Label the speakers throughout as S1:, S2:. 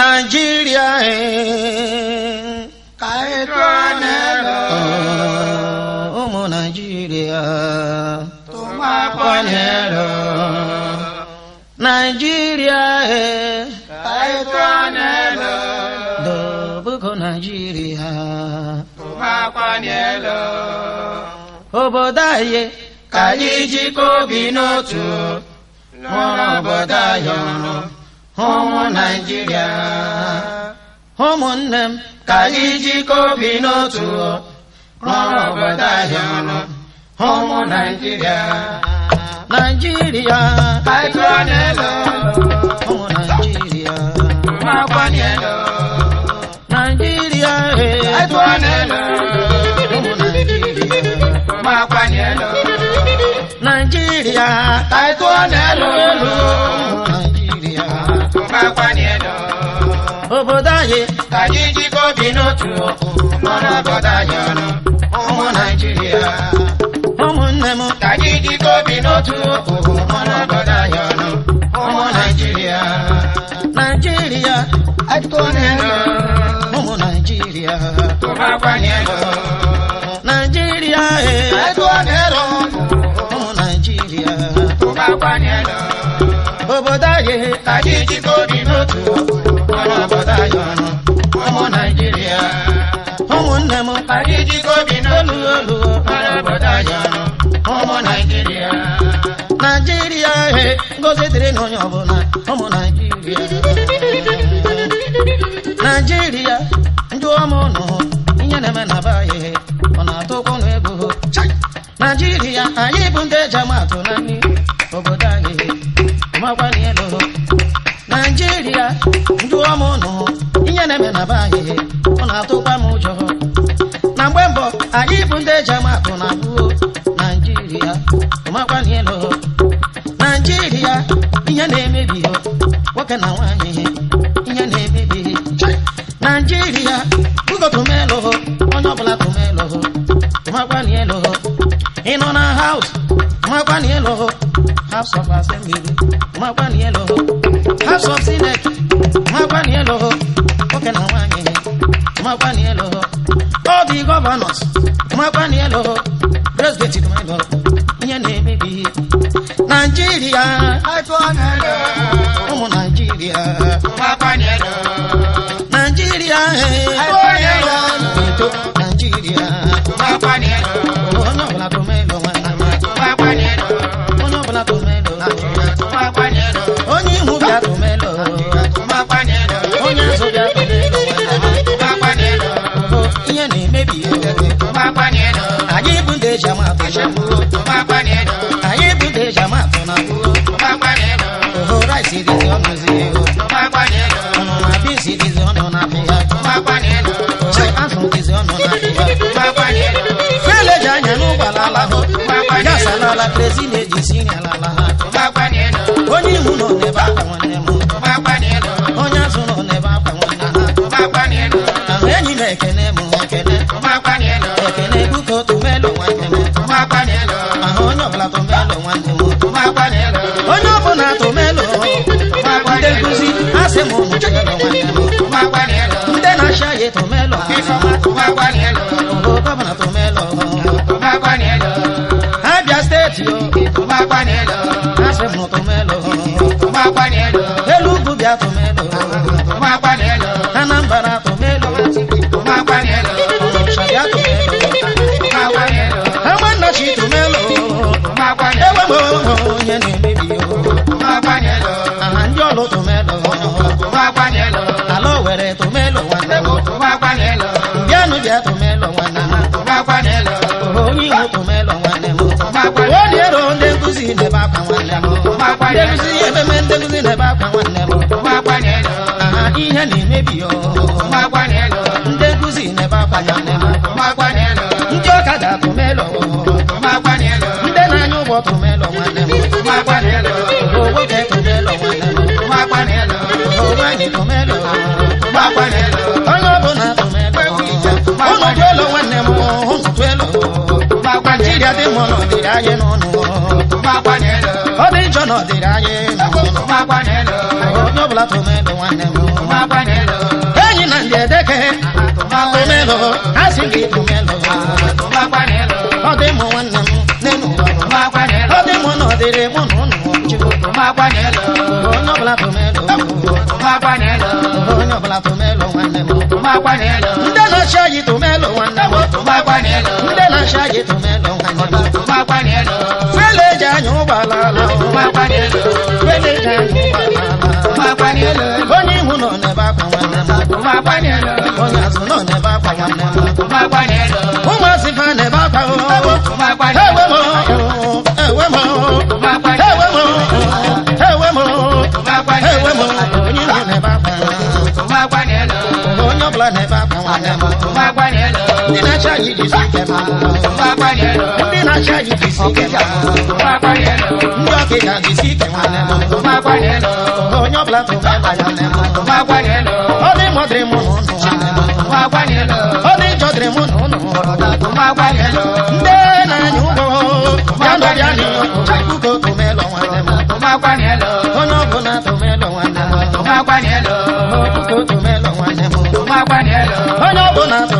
S1: Nigeria cái quan hello ọmọ Nigeria tó má Nigeria cái quan hello Danielu obodo anyị ka anyị jikọ obi n'otu lụrụ obodo anyị ọrụ ụmụ Naịjirịa ụmụnne m ka anyị jikọ obi n'otu rụrụ obodo anyị ọrụ ụmụ Naịjirịa Naịjirịa Danielu n'otu ọkụ ọ na-abọda anyị ọnụ ụmụ naijiria ụmụnne m ka anyị jikọ obi n'otu ọkụ ọ na-abọda anyị ọnụ ụmụ naijiria naijiria adịkọnelu ụmụ naijiria ụmụakwanyelu naijiria ee ụmụ naijiria ụmụakwanyelu obodo anyị ka anyị jikọ obi n'otu ọkụ ụmụnne m adịjiko bi n'olu olu arabata yọrọ ụmụ naijiria naijiria eh, he ngozi dịrị na ọbụla bụ ndị eji Nigeria, akụ na abụ naijiria ụmakwanyelu naijiria ihe na-emebi nwoke na nwaanyị ihe na-emebi naijiria bugo tụmelụ onye ọbụla tụmelụ ụmakwanyelu ị nọ na haus house of assembly ụmakwanyelu house of senate ụmakwanyelu nwoke na nwaanyị ụmakwanyelu all the governors my mwakwaniyelo president mwelo nyene mebi nigeria I ụmụ nigeria mwakwaniyelo. Kasa na la crazy lady sini ala la ha. Tuba kwa neno. Oni uno ne ba kwa nemo. Tuba kwa neno. Onya suno ne ba kwa na ha. Tuba kwa neno. Aheni ne kene mu kene. Tuba kwa neno. Kene buko tumelo wa nemo. Tuba kwa neno. Ahonyo la tumelo wa nemo. Tuba kwa neno. Onyo bona tumelo. Tuba kwa neno. Ndekuzi asemo mu chelo wa nemo. Tuba kwa neno. Ndena shaye tumelo. Kene yẹn ní bíbí o. Kòkò máa pa yẹn lọ. Àjọ ló tún mẹ́ lọ. Kòkò máa pa yẹn lọ. Àlọ́ wẹ̀rẹ̀ tó mẹ́ lọ wọn náà. Kòkò máa pa yẹn lọ. Ìyanu jẹ́ tó mẹ́ lọ wọn náà. Kòkò máa pa yẹn lọ. Oyin mo tó mẹ́ lọ wọn náà. Kòkò máa pa yẹn lọ. Ó lè ro ndékùsì ní bá pa wọn náà. Kòkò máa pa yẹn lọ. Ndékùsì yẹn fẹ́mẹ́ ndékùsì ní bá pa wọn náà. Kòkò máa pa yẹn lọ. Ìyẹn ní mébì o. Kòkò máa pa yẹn lọ. Ndékùsì ní bá pa yẹn lọ. Kòkò máa pa yẹn lọ. ọnụ dịrị anyị n'ọnụ ọdị njọ na ọdịrị anyị onye ọbụla tomedo nwanne m enyi na ndị edeke tomedo ha si gị tomedo ọ dị mụ nwanne m n'elu ọ dị mụ na ọdịrị mụ na ụnụ onye ọbụla tomedo onye ọbụla tomelo nwanne m ndị na-achị anyị tomelo nwanne m ndị na-achị anyị tomelo malala makwanyelo wenete makwanyelo onye ihu nọ ma akwa nwanne m makwanyelo onye ma nọ n'ebe akwa nwanne m anyị dị sikema ndị na-achị anyị dị sikema ndị ọkịka dị sikema onye ọbụla tụta ya ọ dị mọ dịrị mụ na ụnụ ọ dị njọ dịrị mụ na ụnụ ndị na-anya ụgwọ ya nọrịa n'ihu puku tomelọ nwanne m onye ọbụla tomelọ nwanne m puku tomelọ nwanne m onye ọbụla tomelọ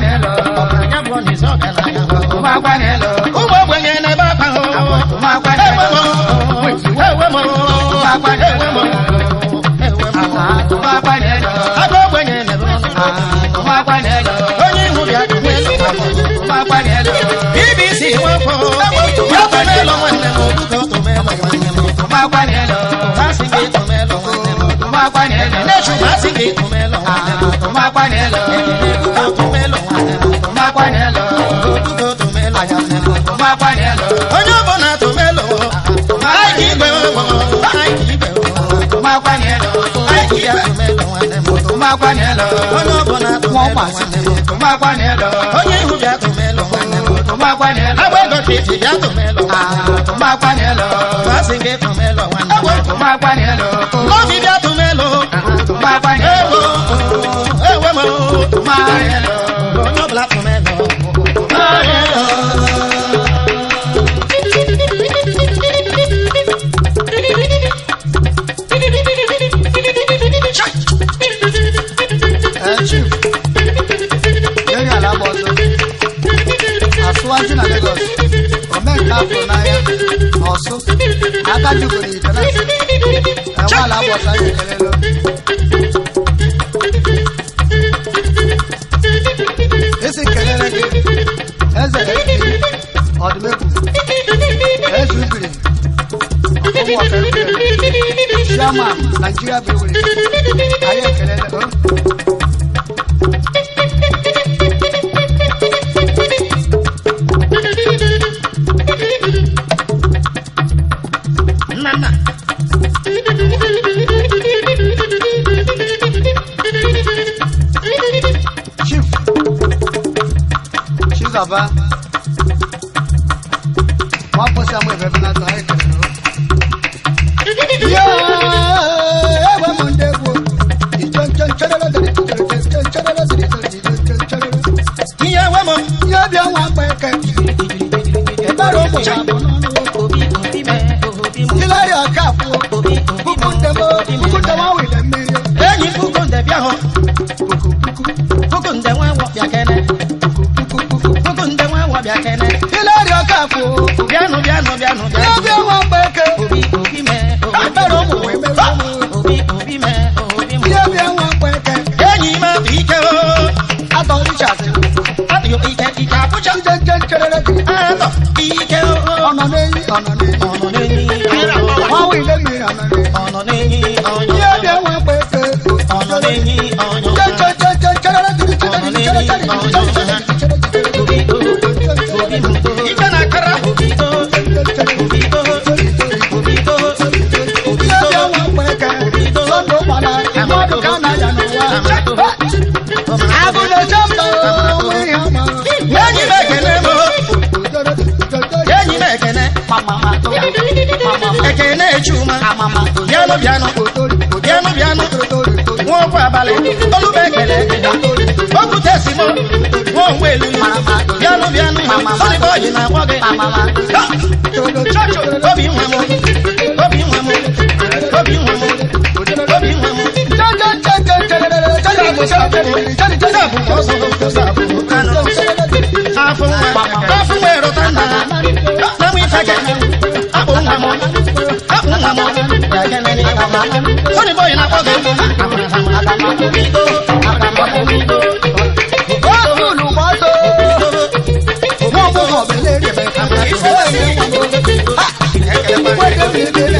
S1: ni tumelo ana tuma panelo tuto tumelo ana tuma panelo tuto tumelo ana tuma panelo onye bona tumelo ai ki gbe mo ai ki gbe mo tuma panelo ai ki ya tumelo ana tuma panelo onye bona tumelo ana tuma panelo onye ihu bia tumelo ana tuma panelo agbego titi bia tumelo ana tuma panelo fasinge tumelo ana tuma panelo obi bia n'anya ọsụ aka jugoro ite na enwe अपना सहाय करो या एव मुंडे को इचन चन चरला दरे चन चन चरला दरे चन चन चरला या एव मम या बिया वा पे के e baro mo ya mo no ko bi ko bi me ko bi mo ila ya ka fo ko bi ko bi mo de mo ko de wa we de me e ni fu ko de bia ho I'm not a chuma amama obiano biano otolu obiano biano otolu wọn kọ abalẹ olùbẹgbẹlẹ okwute simo wọn wọ elu biano biano sọni bọyì na wọgẹ obi nwa mu obi nwa mu obi nwa mu obi nwa mu. Afunwa, afunwa erota nna, na mwife gẹ, abụ nwa m. Sonny boy na kobe. Ó olùkọ́sọ. Wọ́n fún ọ̀bẹ lérí ẹ̀fẹ̀. Ìṣẹ́ ẹ̀mí. Wọ́n dé mi dé.